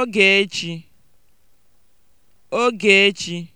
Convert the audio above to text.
Ogechi (Ogechi)